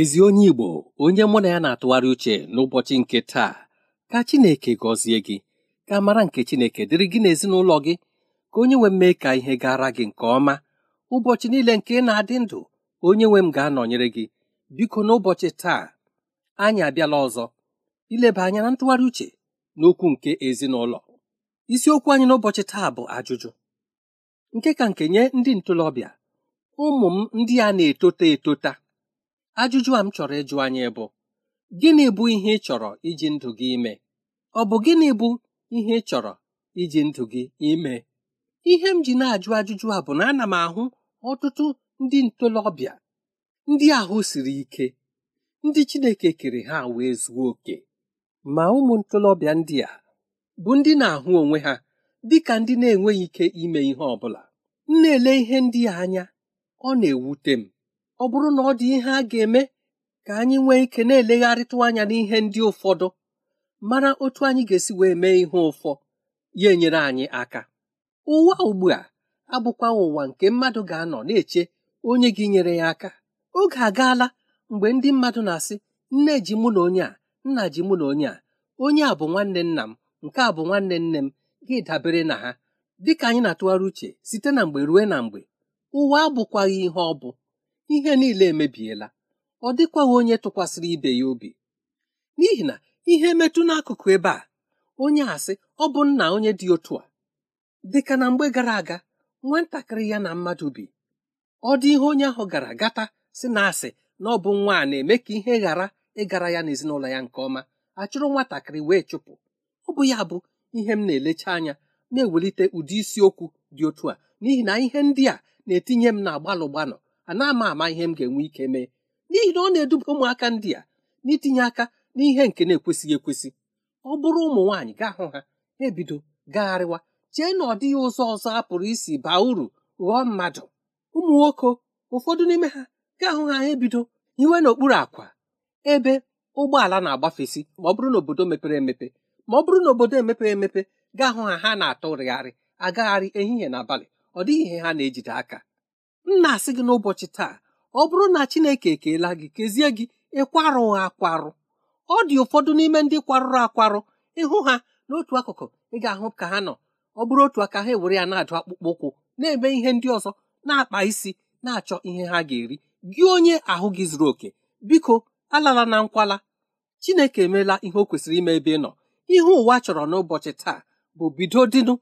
ezi onye Igbo onye mụ na ya na-atụgharị uche n'ụbọchị nke taa ka Chineke gọzie gị ka mara nke Chineke dịrị gị n'ezinụlọ gị ka onye nwe m mee ka ihe gara gị nke ọma ụbọchị niile nke ị na-adị ndụ onye nwe m ga-anọnyere gị biko n'ụbọchị taa anyị abịala ọzọ ileba anya na ntụgharị uche n'okwu nke ezinụlọ isiokwu anyị n'ụbọchị taa bụ ajụjụ nke ka nke nye ndị ntorobịa ụmụ m ndị a na-etota etota ajụjụ a m chọrọ ịjụ anyị bụ gịnị bụ ihe ị chọrọ iji ndụ gị ime ọ bụ gịnị bụ ihe ị chọrọ iji ndụ gị ime ihe m ji na-ajụ ajụjụ a bụ na ana m ahụ ọtụtụ ndị ntolobịa, ndị ahụ siri ike ndị Chineke kere ha wee zuo oke ma ụmụ ntolobịa ndị a bụ ndị na-ahụ onwe ha dị ka ndị na-enweghị ike ime ihe ọ bụla m na-ele ihe ndị a anya ọ na-ewute m ọ bụrụ na ọ dị ihe a ga-eme ka anyị nwee ike na-elegharịtụ anya n'ihe ndị ụfọdụ mara otu anyị ga-esi wee mee ihe ụfọ ya enyere anyị aka ụwa ugbu a abụkwa ụwa nke mmadụ ga-anọ na-eche onye gị nyere ya aka oge agaala mgbe ndị mmadụ na-asị nne ji mụ na onye a nna ji mụ na onye a onye a bụ nwanne nna m nke a bụ nwanne nne m gị dabere na ha dịka anyị na-atụgharị uche site na mgbe ruo na mgbe ụwa abụkwaghị ihe ọ bụ ihe niile emebiela ọ dịkwaghị onye tụkwasịrị ibe ya obi n'ihi na ihe metụ n'akụkụ ebe a onye asị ọ bụ nna onye dị otu a dịka na mgbe gara aga nwatakịrị ya na mmadụ bi ọ dị ihe onye ahụ gara gata si na asị na ọ bụ nwa a na-eme ka ihe ghara ịgara ya n'ezinụlọ ya nke ọma achụrụ nwatakịrị wee chụpụ ọ bụ ya bụ ihe m na-elecha anya na-ewelite ụdị isiokwu dị otu a n'ihi na ihe ndị a na-etinye m na gbalụ gbanọ ana ama ama ihe m ga-enwe ike mee n'ihi na ọ na-eduba ụmụaka ndị a n'itinye aka n'ihe nke na-ekwesịghị ekwesị ọ bụrụ ụmụ nwaanyị gaa hụ ha ebido gagharịwa chee na ọ dịghị ụzọ ọzọ a pụrụ isi baa uru ghọọ mmadụ ụmụ nwoke ụfọdụ n'ime ha gaa hụ ha ebido iwe n'okpuru akwa ebe ụgbọala na-agbafesi ma ọ bụrụ na obodo mepere emepe ma ọ bụrụ na obodo emepeghị emepe gaa hụ ha ha na-atụrịgharị agagharị ehihie na abalị ọ dịghị ihe ha na-ejide aka m na-asị gị n'ụbọchị taa ọ bụrụ na chineke ekeela gị kezie gị ịkwarụghị akwarụ ọ dị ụfọdụ n'ime ndị kwarụrụ akwarụ ịhụ ha n'otu akụkụ ị ga-ahụ ka ha nọ ọ bụrụ otu aka ha ewere ya na-adụ akpụkpọ ụkwụ na-eme ihe ndị ọzọ na-akpa isi na-achọ ihe ha ga-eri gị onye ahụ gị zuru oke biko alala na nkwala chineke emeela ihe o kwesịrị ime ebe ị nọ ihe ụwa chọrọ n'ụbọchị taa bụ bido dịnụ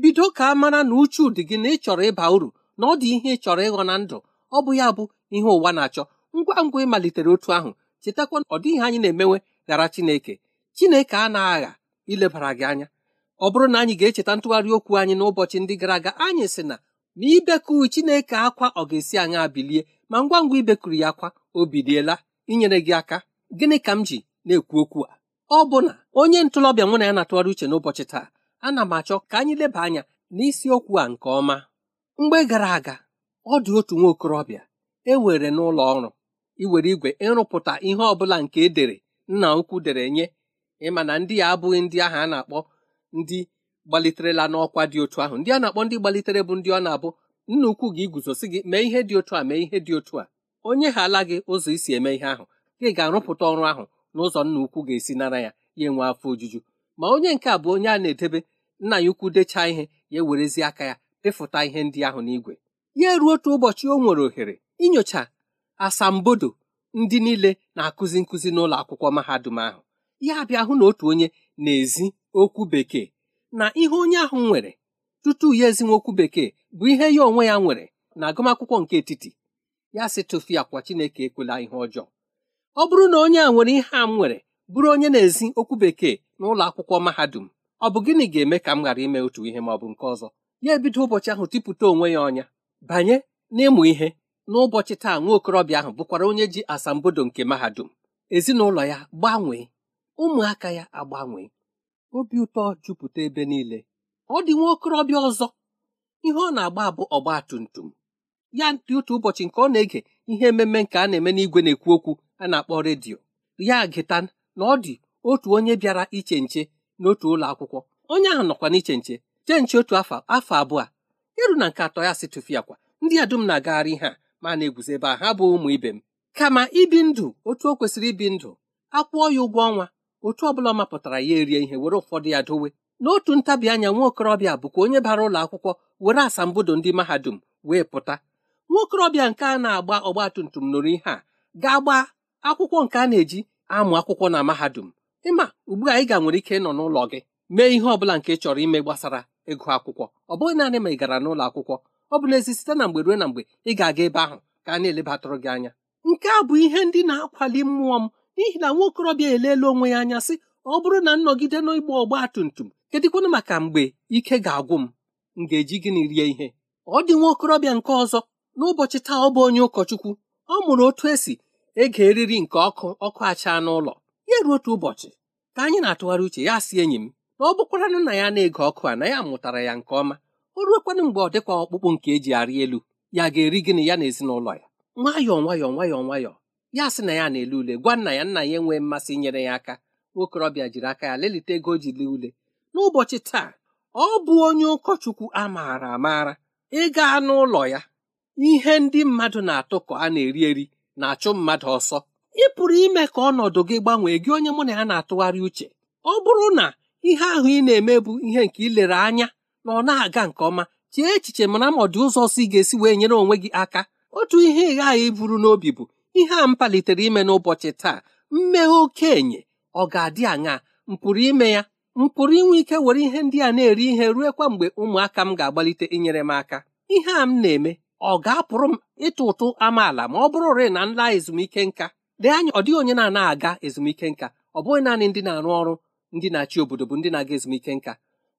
bido ka a mara na uchu dị gị na ị chọrọ ịba uru na ọ dị ihe ị chọrọ ịghọ na ndụ ọ bụ ya bụ ihe ụwa na-achọ ngwa ngwa ịmalitere otu ahụ chetakwa ọ dịghị anyị na-emewe ghara Chineke Chineke a na-agha ilebara gị anya ọ bụrụ na anyị ga-echeta ntụgharị okwu anyị n'ụbọchị ndị gara aga anyị sị na ma ibekuru Chineke akwa ọ ga-esi anyị bilie ma ngwa ngwa ibekuru ya akwa o biliela inyere gị aka gịnị ka m ji na-ekwu okwu a ọ bụ na onye ntolọbịa nwere ya na-atụgharị uche n'ụbọchị taa ana m achọ ka anyị leba anya n'isiokwu a nke ọma mgbe gara aga ọ dị otu nwa okorobịa ewere n'ụlọ ọrụ iwere igwe ịrụpụta ihe ọbụla nke edere nna ukwu dere nye ịma na ndị ya abụghị ndị ahụ a na-akpọ ndị gbaliterela n'ọkwa dị otu ahụ ndị a na-akpọ ndị gbalitere bụ ndị ọ na-abụ nna ukwu gị iguzosi gị mee ihe dị otu a mee ihe dị otu a onye ha ala gị ụzọ isi eme ihe ahụ gị ga-arụpụta ọrụ ahụ n'ụzọ nna ukwu ga-esi nara ya ya enwe afọ ojuju ma onye nke a bụ onye a na-edebe nna ya ukwu dechaa ihe ya ewerezi aka ya ịfụta ihe ndị ahụ n'igwe ya ruo otu ụbọchị o nwere ohere inyocha asambodo ndị niile na-akụzi nkụzi n'ụlọ akwụkwọ mahadum ahụ ya bịa hụ na otu onye na-ezi okwu bekee na ihe onye ahụ nwere tutu ya ezinwe okwu bekee bụ ihe ya onwe ya nwere na agụmakwụkwọ nke etiti ya si tụfia kwa Chineke ekwela ihe ọjọọ ọ bụrụ na onye a nwere ihe a m nwere bụrụ onye na-ezi okwu bekee n'ụlọ akwụkwọ mahadum ọ bụ gịnị ga-eme ka m ghara ime otu ihe ma ọ bụ nke ọzọ ya ebido ụbọchị ahụ tipụta onwe ya ọnya banye n'ịmụ ihe n'ụbọchị taa nwa okorobịa ahụ bụkwara onye ji asambodo nke mahadum ezinụlọ ya gbanwee ụmụaka ya agbanwee obi ụtọ jupụta ebe niile ọ dị nwa okorobịa ọzọ ihe ọ na-agba bụ ọgba tum tum ya dị otu ụbọchị nke ọ na-ege ihe ememe nke a na-eme n'igwe na-ekwu okwu a na-akpọ redio ya gịta na ọ dị otu onye bịara iche nche n'otu ụlọ akwụkwọ onye ahụ nọkwa n'iche nche jee nche otu afọ afọ abụọ iru na nke atọ ya si tụfịa kwa ndị a dum na-agagharị ihe a ma na eguzobe a ha bụ ụmụ ibe m kama ibi ndụ otu o kwesịrị ibi ndụ akwụọ ya ụgwọ ọnwa otu ọbụla ọ mapụtara ya erie ihe were ụfọdụ ya dowe n'otu ntabi anya nwa okorobịa bụkwa onye bara ụlọ akwụkwọ were asambodo ndị mahadum wee pụta nwa okorobịa nke a na-agba ọgba tum tum nụrụ ihe a ga-agba akwụkwọ nke a na-eji amụ akwụkwọ na mahadum ịma ugbu a ị ga nwere ike ịnọ n'ụlọ gị mee ihe ọ bụla nke chọrọ ime gbasara ịgụ akwụkwọ ọ bụghị naanị ma ị gara n'ụlọ akwụkwọ ọ bụ n'ezi site na mgbe ruo na mgbe ị ga-aga ebe ahụ ka a na-elebatụrụ gị anya nke a bụ ihe ndị na-akwali mmụọ m n'ihi na nwa okorobịa eleela onwe ya anya sị ọ bụrụ na nnọgide n'ịgba ọgba tum tum kedịkwanụ maka mgbe ike ga-agwụ m m ga-eji gịnị rie ihe ọ dị nwa okorobịa nke ọzọ n'ụbọchị taa ọ bụ onye ụkọchukwu ọ mụrụ otu esi ege eriri nke ọkụ ọkụ acha n'ụlọ ya ruo otu ụbọchị ka anyị na-atụgharị uche ya si enyi m na ọ bụkwaranụ na ya na-ege ọkụ a na ya mụtara ya nke ọma o ruokwanụ mgbe ọ dịkwa ọkpụkpụ nke eji arị elu ya ga-eri gịnị ya na ezinụlọ ya nwayọọ nwayọọ nwayọọ nwayọọ ya sị na ya na-ele ule gwa nna ya nna ya enwee mmasị inyere ya aka nwokorobịa jiri aka ya lelite ego o ji lee ule n'ụbọchị taa ọ bụ onye ụkọchukwu a maara amaara ịga n'ụlọ ya ihe ndị mmadụ na-atụ ka a na-eri eri na-achụ mmadụ ọsọ ị pụrụ ime ka ọnọdụ gị gbanwee gị onye mụ na ya na-atụgharị uche ọ bụrụ na ihe ahụ ị na-eme bụ ihe nke lere anya na ọ na-aga nke ọma chee echiche mana ma ọ ụzọ si ị ga-esi wee nyere onwe gị aka otu ihe ị ghaghị iburu n'obi bụ ihe a m palitere ime n'ụbọchị taa mmeghe okenye ọ ga-adị aṅaa m pụrụ ime ya m pụrụ inwe ike were ihe ndị a na-eri ihe kwa mgbe ụmụaka m ga-agbalite inyere m aka ihe a m na-eme ọ ga-apụrụ m ịtụ ụtụ amaala ma ọ bụrụ rịị na nla ezumike nka dee anya ọ dịghị onye na-anaghị aga ezumike nka ọ bụghị naanị ndị na-arụ ọrụ ndị na-achị obodo bụ ndị na-aga ezumike nka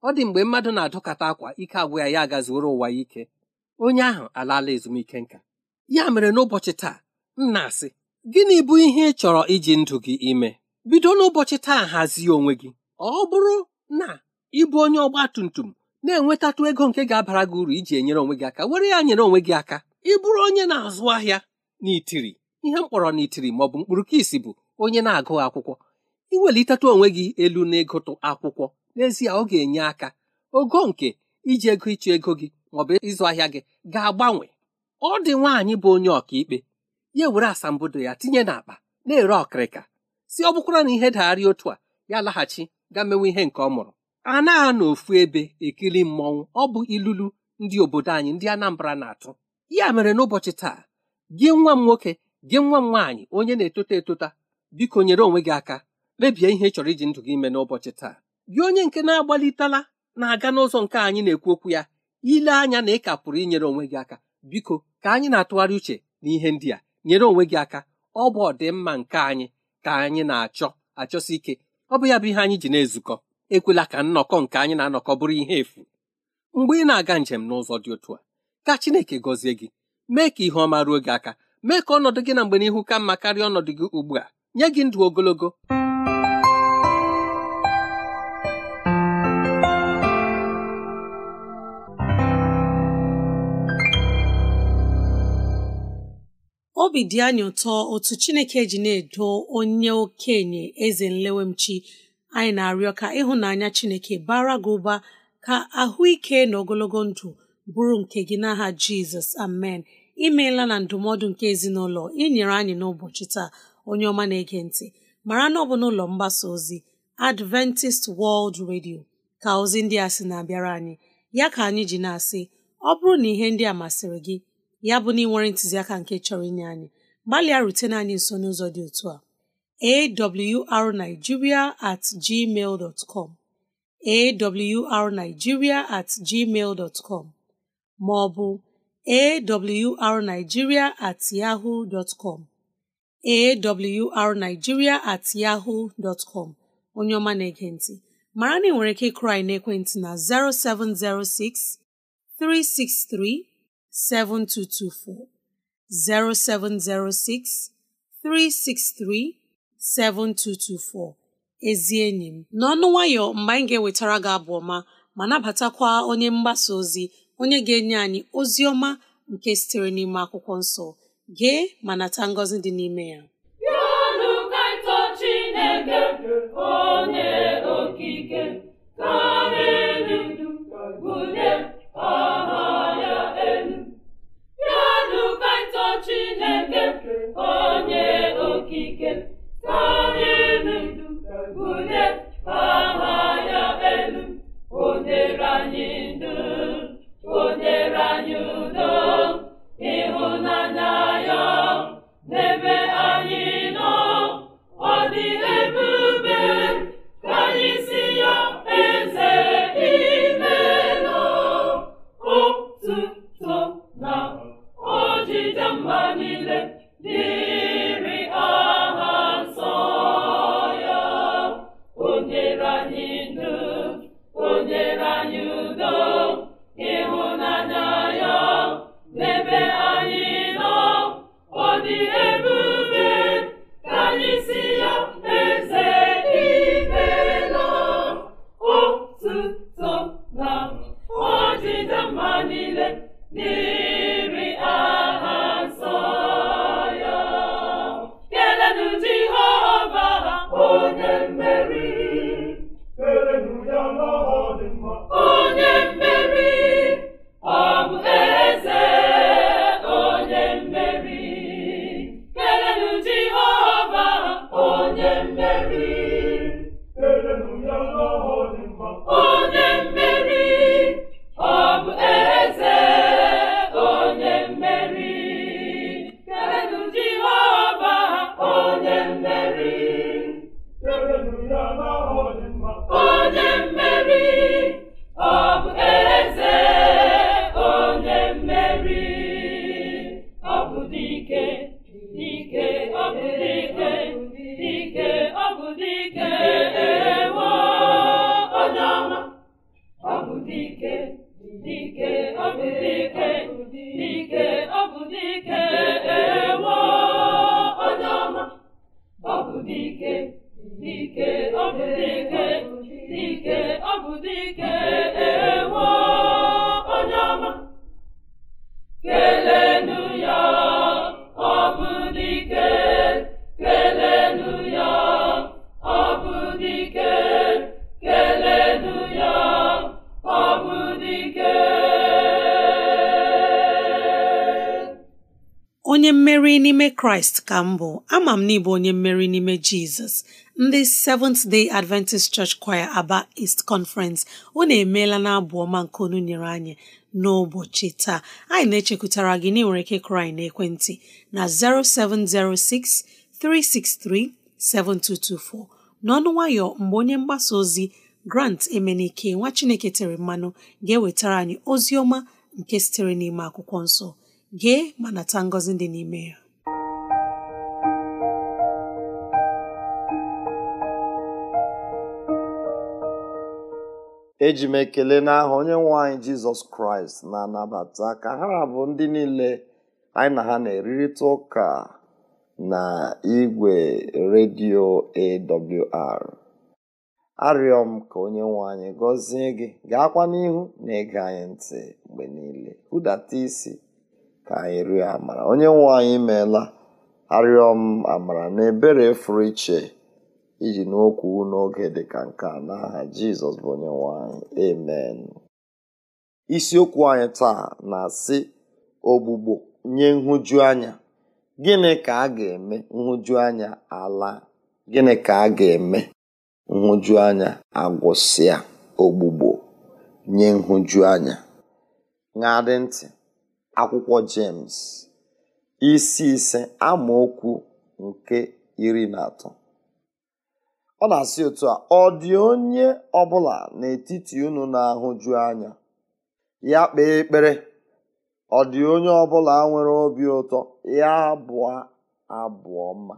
ọ dị mgbe mmadụ na adụkata akwa ike agwụ ya ya agazioro ụwa ya ike onye ahụ alaala ezumike nka ya mere n'ụbọchị taa nna asị gịnị bụ ihe ị chọrọ iji ndụ gị ime bido n'ụbọchị taa hazie onwe gị ọ bụrụ na ịbụ onye ọgba tum tum na-enwetatụ ego nke ga-abara gị uru iji enyere onwe gị aka were ya nyere onwe gị aka ịbụrụ onye na-azụ ahịa n'itiri ihe mkpọrọ n'itiri ma ọ bụ mkpụrụ ka bụ onye na-agụghị akwụkwọ iwelitatụ onwe gị elu n'ịgụtụ akwụkwọ n'ezie ọ ga-enye aka ogo nke iji ego ịchụ ego gị maọbụ ịzụ ahịa gị ga-agbanwe ọ dị nwaanyị bụ onye ọkaikpe ya were asambodo ya tinye n'akpa na-ere ọkịrịka si ọ bụkwara na ihe dagharị otu a ya laghachi ga mewe ihe nke ọ mụrụ a na ofu ebe ekiri mmọnwụ ọ bụ ilulu ndị obodo anyị ndị Anambra na-atụ ya mere n'ụbọchị taa gị nwa m nwoke gị nwa m nwaanyị onye na-etota etota biko nyere onwe gị aka mebie ihe ị chọrọ iji ndụ gị ime n'ụbọchị taa gị onye nke na-agbalitela na-aga n'ụzọ nke anyị na-ekwu okwu ya ile anya na ị ka pụrụ inyere onwe gị aka biko ka anyị na-atụgharị uche na ihe ndị a nyere onwe gị aka ọ bụ ọdịmma nke anyị ka anyị na-achọ achọsi ike ọ bụ ya bụ ihe anyị ji na-ezukọ ekwela ka nnọkọ nke anyị na-anọkọ bụrụ ihe efu mgbe ị na-aga njem n'ụzọ dị otu a ka Chineke gọzie gị mee ka ihe ọma ruo gị aka mee ka ọnọdụ gị na mgbe n'ihu ka mma karịa ọnọdụ gị ugbu a nye gị ndụ ogologo obi dị anyị ụtọ otu chineke ji na-edo onye okenye eze nlewemchi anyị na-arịọ ka ịhụnanya chineke bara gị ụba ka ahụike na ogologo ndụ bụrụ nke gị n'aha jizọs amen imeela na ndụmọdụ nke ezinụlọ inyere anyị n'ụbọchị taa onye ọma na-ege ntị mara na ọ bụ n'ụlọ mgbasa ozi adventist world radio ka ozi ndị a sị na-abịara anyị ya ka anyị ji na-asị ọ bụrụ na ihe ndị a masịrị gị ya bụ na ị ntụziaka nke chọrọ inye anyị gbalịa rutene anyị nso n'ụzọ dị otu a awrnigeria at gmail dot com awrnigeria at gmail dot com ma ọ bụ awrnigeria at com awrnigeria at yahoo dot onye na-ege ntị mara na ị nwere ike ịkụrụ anyị ekwentị na 0706 7224 0706 363 7224 ezi enyi m n'ọnụ nwayọ mgbe anyị ga-ewetara gị abụ ọma ma nabatakwa onye mgbasa ozi onye ga-enye anyị ozi ọma nke sitere n'ime akwụkwọ nsọ gee ma nata ngọzi dị n'ime ya onye okike onye mmeri n'ime kraịst ka m bụ ama m n'ịbụ onye mmeri n'ime jizọs ndị Seventh Day Adventist Church Choir Aba East Conference unu emeela na abụ ọma nke onu nyere anyị n'ụbọchị taa anyị na-echekwutara gị na nwere ike kraị na ekwentị na 0706 363 7224 n'ọnụ nwayọ mgbe onye mgbasa ozi Grant Emenike nwa Chineke tere mmanụ ga-ewetara anyị ozi ọma nke sitere n'ime akwụkwọ nsọ gee ma nata ngọzi dị n'ime ya eji m ekele n'aha onye nwe anyị jizọs kraịst na-anabata ka ha bụ ndị niile anyị na ha na erirịta ụka na igwe redio awr arịọ m ka onye nwanyị anyị gọzie gị gaakwa n'ihu na ịga anyị ntị mgbe niile hụdata isi ka anyị rịọ amara onye nwe anyị meela arịọ m amara na ebere fụrụ iche iji n'okwu n'oge dịka nke a n'aha jizọs bụ onye nwe anyị isiokwu anyị taa na-asị ogbugbo nye nhụjuanya gịnị ka a ga-eme nhụjuanya ala gịnị ka a ga-eme nhụjuanya agwụsịa ogbugbo nye nhụjuanya na dị ntị akwụkwọ James isi ise amaokwu nke iri na atọ ọ na-asị otu a ọ dị onye ọbụla n'etiti unu na-ahụju anya ya kpee ekpere ọ dị onye ọbụla nwere obi ụtọ ya abụọ abụọ mma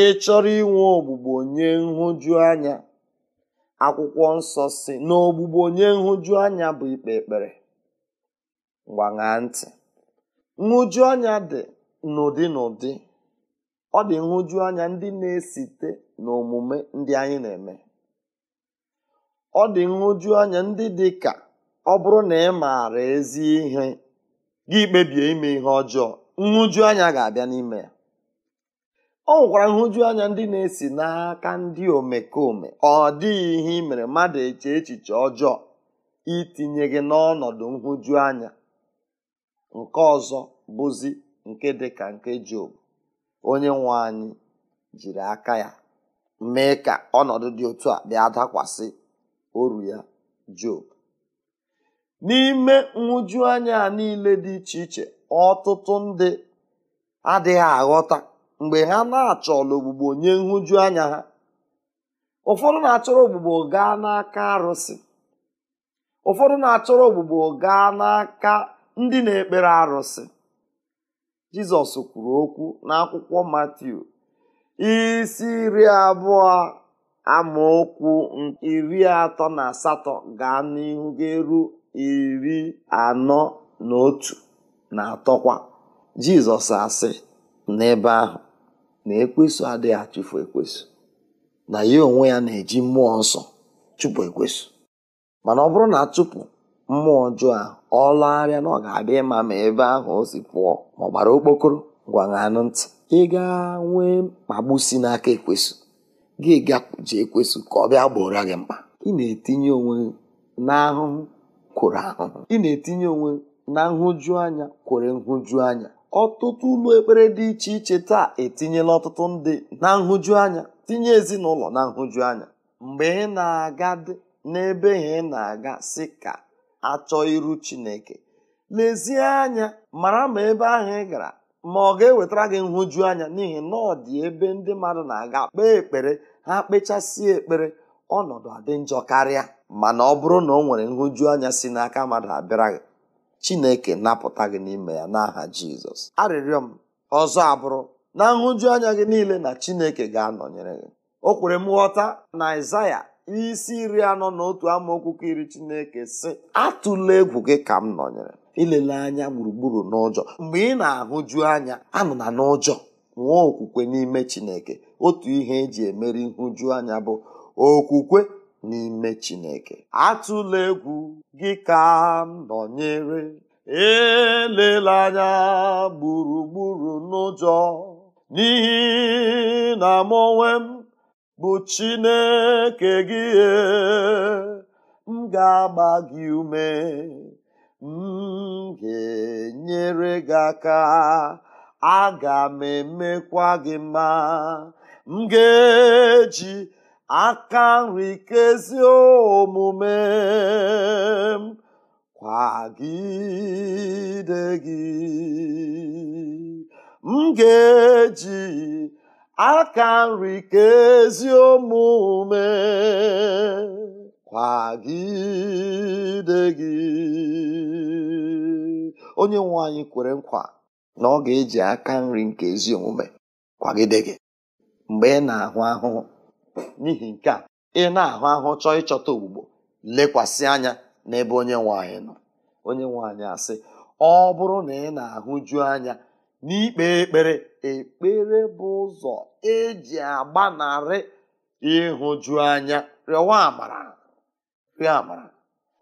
ị chọrọ inwe ogbugbo nye nhụju akwụkwọ nsọ si na ogbugbo onye nhụjuanya bụ ikpe ekpere gbaṅaa ntị nhụju anya dị n'ụdị n'ụdị ọ dị nhụju anya ndị na-esite n'omume ndị anyị na-eme ọ dị nhụju anya ndị dị ka ọ bụrụ na ị maara ezi ihe gị kpebie ime ihe ọjọọ nhụju anya ga-abịa n'ime ya ọ nwekwara nhụju anya ndị na-esi n'aka ndị omekome ọ dịghị ihe ị mere mmadụ eche echiche ọjọọ itinye gị n'ọnọdụ nhụju anya nke ọzọ bụzi nke dị ka nke Job onye nwe anyị jiri aka ya mee ka ọnọdụ dị otu a bịa dakwasị oru ya Job n'ime nhụjuanya a niile dị iche iche ọtụtụ ndị adịghị aghọta mgbe ha na-achọla ogbugbo nye nhụjuanya ha ụfọdụ na-achọrọ ogbugbo gaa n'aka arụsị ụfọdụ na-achọrọ ogbugbo gaa n'aka ndị na-ekpere arụsị jizọs kwuru okwu n'akwụkwọ matiu isi iri abụọ amaokwu iri atọ na asatọ gaa n'ihu ga-eru iri anọ na otu na atọkwa jizọs asị n'ebe ahụ na ekwesu adịghị achụfu ekwesu na ya onwe ya na-eji mmụọ nsọ chụpụ ekwesu mana ọ bụrụ na chụpụ mmụọ ọjọọ a ọ arịa na ọ ga-abịa ịma ma ebe ahụ o si pụọ ma ọ gbara okpokoro gwaṅanụ ntị ị ga nwee mkpagbu si n'aka ekwesụ gị gakwuje ekwesụ ka ọ bịa gbora gị mkpa ị na-etinye onwe n'ahụhụ kworo ahụhụ ị na-etinye onwe na nhụju anya kwere nhụju anya ọtụtụ ụlọ ekpere dị iche iche taa etinyela ọtụtụ ndị na nhụju anya tinye ezinụlọ na nhụju anya mgbe ị na-aga dị n'ebe ha ị na-aga si ka achọ iru chineke lezie anya mara ma ebe ahụ ị gara ma ọ ga-ewetara gị nhụju anya n'ihi na ọ dị ebe ndị mmadụ na-aga kpee ekpere ha kpechasịa ekpere ọnọdụ adị njọ karịa mana ọ bụrụ na ọ nwere nhụju anya si n'aka mmadụ abịara gị chineke napụta gị n'ime ya n'aha jizọs arịrịọ m ọzọ abụrụ na nhụju anya gị niile na chineke ga-anọnyere gị o kwere m ghọta na Aịzaya isi iri anọ na otu amaokwu iri chineke si atụla egwu gị ka m nọnyere ilele anya gburugburu n'ụjọ mgbe ị na-ahụju anya anụ na n'ụjọ nwee okwukwe n'ime chineke otu ihe eji emeri nhụju anya bụ okwukwe n'ime chineke atụla egwu gị ka m nọnyere elele anya gburugburu n'ụjọ n'ihi na m onwe m bụ chineke gị e, m ga-agba gị ume m ga-enyere gị aka aga m emekwa gị mma m ga-eji aka nri kezi omume m kwagide gị m ga-eji aka nri ka ezi omume kwagide gị onye nwe anyị kwere nkwa na ọ ga-eji aka nri nke ezi omume kwagide gị mgbe ị na-ahụ ahụhụ n'ihi nke a ị na-ahụ ahụhụ chọọ ịchọta ogbugbo lekwasị anya n'ebe onye nwe anyị nọ onye nwe anyị asị ọ bụrụ na ị na-ahụju anya n'ikpe ekpere ekpere bụ ụzọ eji agbanarị ịhụju anya rịọwa amara rịọ amara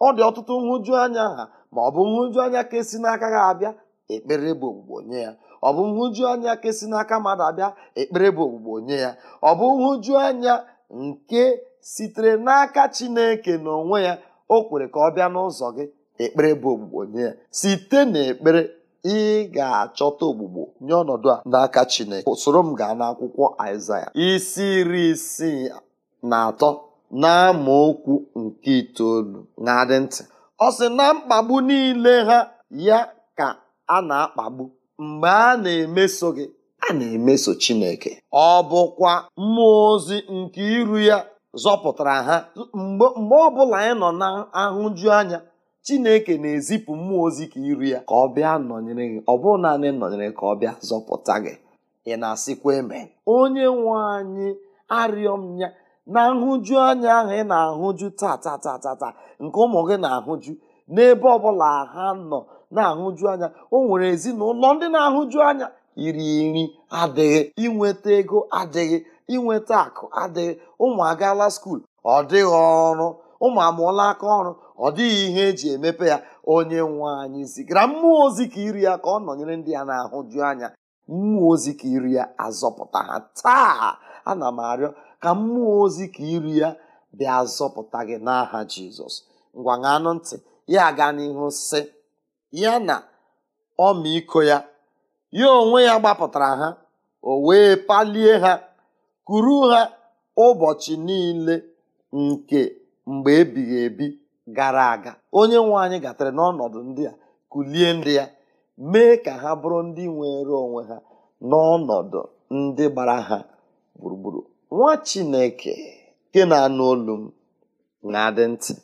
ọ dị ọtụtụ nhụju anya ha ma ọ bụ nhụju anya ka esi n'aka ha abịa ekpere bụ ogbugbo nye ya ọ bụ nhụju anya ka esi n'aka mmadụ abịa ekpere bụ ogbugbo nye ya ọ bụ nhụju anya nke sitere n'aka Chineke n'onwe ya o kwere ka ọ bịa n'ụzọ gị ekpere bụ ogbugbo nye ya site n'ekpere ị ga-achọta ogbugbo nye ọnọdụ a n'aka Chineke soro m gaa n'akwụkwọ Aịzaya isi iri isii na atọ okwu nke itoolu na-adị ntị ọ sị na mkpagbu niile ha ya ka a na-akpagbu mgbe a na-emeso gị a na-emeso Chineke ọ bụkwa mmụọ ozi nke iru ya zọpụtara ha mgbe ọ bụla anyị nọ na ahụju anya chineke na-ezipụ mmụọ ozi ka iri ya ka ọ bịa nọnyere gị ọ bụrụ naanị nọnyere ka ọ bịa zọpụta gị ị na-asịkwa eme onye nwe anyị arịọ m ya na nhụju anya ahụ ị na-ahụju tatatatata nke ụmụ gị na-ahụju n'ebe ọbụla ha nọ na-ahụju anya o nwere ezinụlọ ndị na-ahụju anya iri nri adịghị inweta ego adịghị inweta akụ adịghị ụmụ agaala skuul ọ dịghị ọrụ ụmụ amụọla aka ọrụ ọ dịghị ihe eji emepe ya onye nwe anyị zigara mmụọ ozi ka iri ya ka ọ nọnyere ndị ya na-ahụju anya mmụọ ozi ka iri ya azọpụta ha taa ana m arịọ ka mmụọ ozi ka iri ya bịa azọpụta gị n'aha jizọs ngwa ṅanụ ntị ya aga n'ihu sị ya na ọmịiko ya ya onwe ya gbapụtara ha o wee palie ha kuru ha ụbọchị niile nke mgbe ebighị ebi gara aga onye nwe anyị gatara n'ọnọdụ ndị a kulie ndị ya mee ka ha bụrụ ndị nwere onwe ha n'ọnọdụ ndị gbara ha gburugburu nwa chineke nke na-anụ olu m na-adị ntị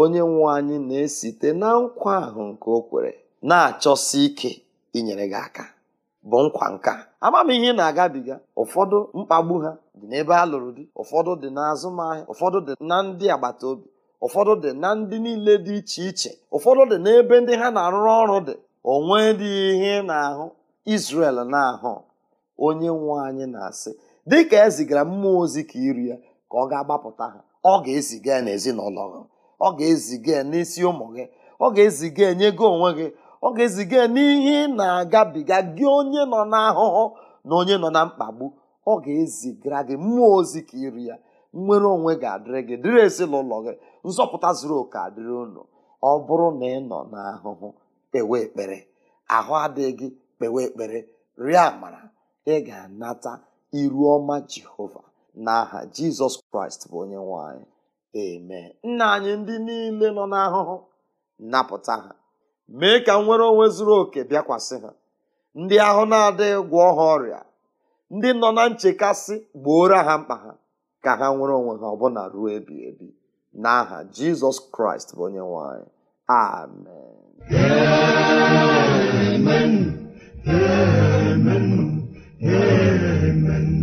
onye nwe anyị na-esite na nkwa ahụ nke o kwere na-achọsi ike inyere gị aka bụ nkwa nka amam ihe na-agabiga ụfọdụ mkpagbu ha dị n'ebe a lụrụ di ụfọdụ dị n'azụmahịa ụfọdụ dị na ndị agbata obi ụfọdụ dị na ndị niile dị iche iche ụfọdụ dị n'ebe ndị ha na-arụrụ ọrụ dị onwe dị ihe na-ahụ Izrel na-ahụ onye nwe anyị na-asị dịka ezigara zigara mmụọ ozi ka iri ya ka ọ ga-agbapụta ha ọ ga-eziga ya n'ezinụlọ gị ọ ga-eziga ya n'isi ụmụ gị ọ ga-eziga ya nye gị onwe gị ọ ga-eziga ya n'ihe ị na-agabiga gị onye nọ n'ahụhụ na onye nọ na mkpagbu ọ ga-ezigara gị mmụọ ozi ka iri ya nnwere onwe ga-adịrị gị dịrị ezinụlọ gị nzọpụta zuru oke adịrị unu ọ bụrụ na ị nọ n'ahụhụ kpewe ekpere ahụ adịghị kpewe ekpere rịa amara ị ga-anata iru ọma jehova n'aha jizọs kraịst bụ onye nwanyị anyị nna anyị ndị niile nọ n'ahụhụ napụta ha mee ka nwere onwe zuru oke bịakwasị ha ndị ahụ na-adịghị gwọọ ha ọrịa ndị nọ na nchekasị gboora ha mkpa ha ka ha nwere onwe ha ọbụna ruo ebi ebi n'aha jizọs kraịst bụ onye nwanyị amen amen amen amen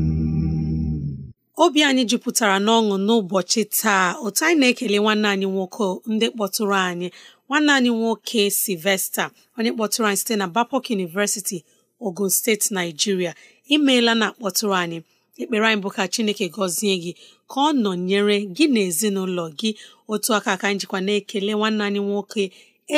obi anyị jupụtara n'ọṅụ n'ụbọchị taa otu anyị na-ekele nwanne anyị nwoke ndị kpọtụrụ anyị nwanne anyị nwoke Sylvester onye kpọtụrụ anyị site na Bapok University Ogun steeti Naijiria. imeela na kpọtụrụ anyị ekpere anyị bụ ka chineke gọzie gị ka ọ nọnyere gị na ezinụlọ gị otu aka ka njikwa na-ekele nwanne anyị nwoke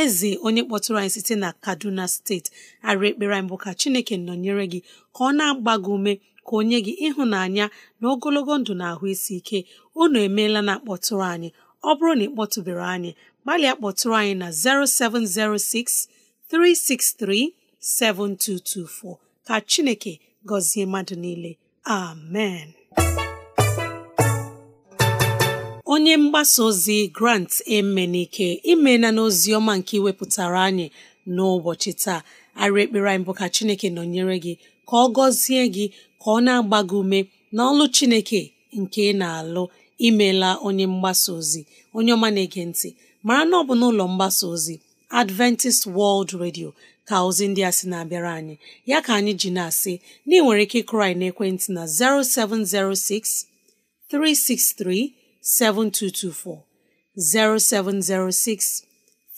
eze onye kpọtụrụ anyị site na kaduna steeti arị ekpere anyị bụ ka chineke nọnyere gị ka ọ na-agba gị ume ka o nye gị ịhụnanya na ogologo ndụ na ahụ isi ike unu emeela na akpọtụrụ anyị ọ bụrụ na ị kpọtụbere anyị gbalịa kpọtụrụ anyị na 0706 363 7224 ka chineke gọzie mmadụ niile amen onye mgbasa ozi grant emenike imela n'ozi ọma nke iwepụtara anyị n'ụbọchị taa arị ekpere anyị bụ ka chineke nọnyere gị ka ọ gọzie gị ka ọ na-agba gị ume n'ọlụ chineke nke ị na-alụ imela onye mgbasa ozi onye ọma na-ege ntị mara na ọ bụ n'ụlọ mgbasa ozi Adventist World Radio ka ozi ndị a sị na-abịara anyị ya ka anyị ji na-asị na ị nwere ike ịkụrụ anyị n'ekwentị na 0706 363 7224 0706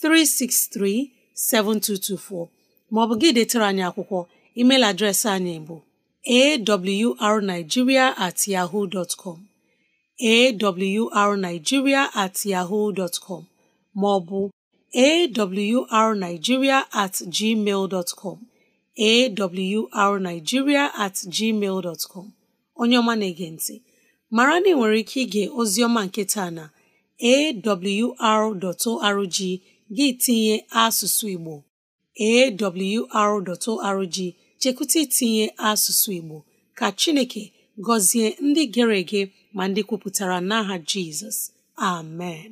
363 7224 ma ọ bụ gị detere anyị akwụkwọ email adreesị anyị bụ awrnigeria at yahoo dot com at yahoo dot com ma ọ bụ arigiria at gmail dot com at com onye ọma na-ege ntị mara na ị nwere ike ige ozi ọma nke taa na awr.org gị tinye asụsụ Igbo awr.org chekwụta itinye asụsụ Igbo ka Chineke gọzie ndị gere ege ma ndị kwupụtara n'aha Jizọs amen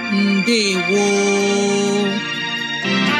ndewo